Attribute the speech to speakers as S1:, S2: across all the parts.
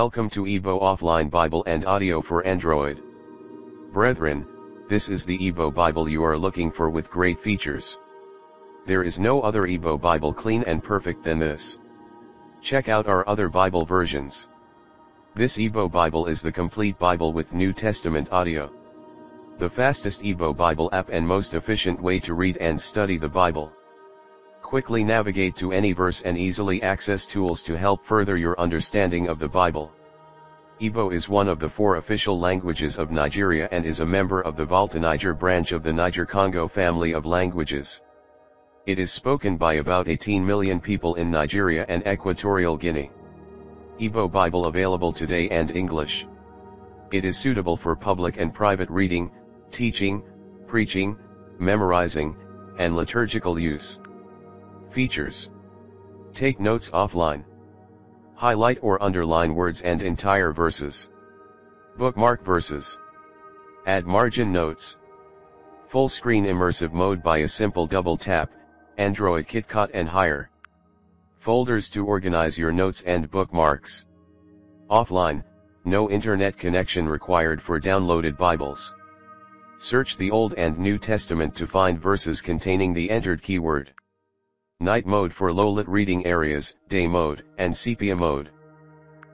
S1: Welcome to Ebo Offline Bible and Audio for Android. Brethren, this is the Ebo Bible you are looking for with great features. There is no other Ebo Bible clean and perfect than this. Check out our other Bible versions. This Ebo Bible is the complete Bible with New Testament audio. The fastest Ebo Bible app and most efficient way to read and study the Bible. Quickly navigate to any verse and easily access tools to help further your understanding of the Bible. Igbo is one of the four official languages of Nigeria and is a member of the Volta Niger branch of the Niger-Congo family of languages. It is spoken by about 18 million people in Nigeria and Equatorial Guinea. Igbo Bible available today and English. It is suitable for public and private reading, teaching, preaching, memorizing, and liturgical use. Features. Take notes offline. Highlight or underline words and entire verses. Bookmark verses. Add margin notes. Full screen immersive mode by a simple double tap, Android KitKat and higher. Folders to organize your notes and bookmarks. Offline, no internet connection required for downloaded Bibles. Search the Old and New Testament to find verses containing the entered keyword night mode for low-lit reading areas, day mode, and sepia mode.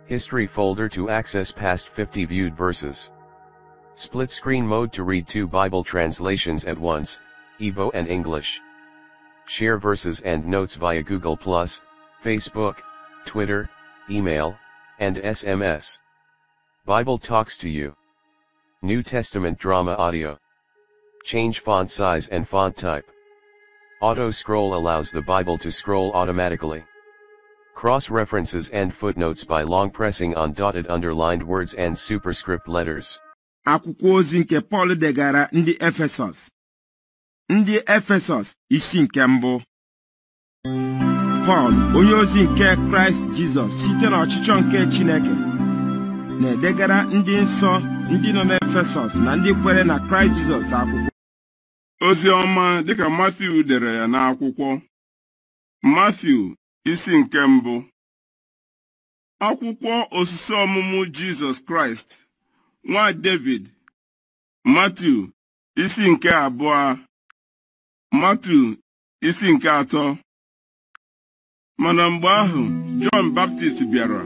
S1: History folder to access past 50 viewed verses. Split screen mode to read two Bible translations at once, Evo and English. Share verses and notes via Google+, Facebook, Twitter, email, and SMS. Bible talks to you. New Testament drama audio. Change font size and font type. Auto scroll allows the Bible to scroll automatically. Cross references and footnotes by long pressing on dotted underlined words and superscript letters.
S2: Akwụkwọ ozi nke Pọl degara ndị Efesọs. Ndị Efesọs isi nke mbụ. Pọl, onye ozi nke Kraịst Jizọs site n'ọchịchọ nke Chineke, na-edegara ndị nsọ ndị nọ n'Efesọs na ndị kwere na Christ Jesus.
S3: akwụkwọ. ozi ọma dịka Matthew dere ya n'akwụkwọ Mathew isi nke mbụ akwụkwọ osisi ọmụmụ Jizọs Kraịst nwa David Mathew isi nke abụọ Mathew isi nke atọ mana mgbe ahụ Jọn Baptist bịara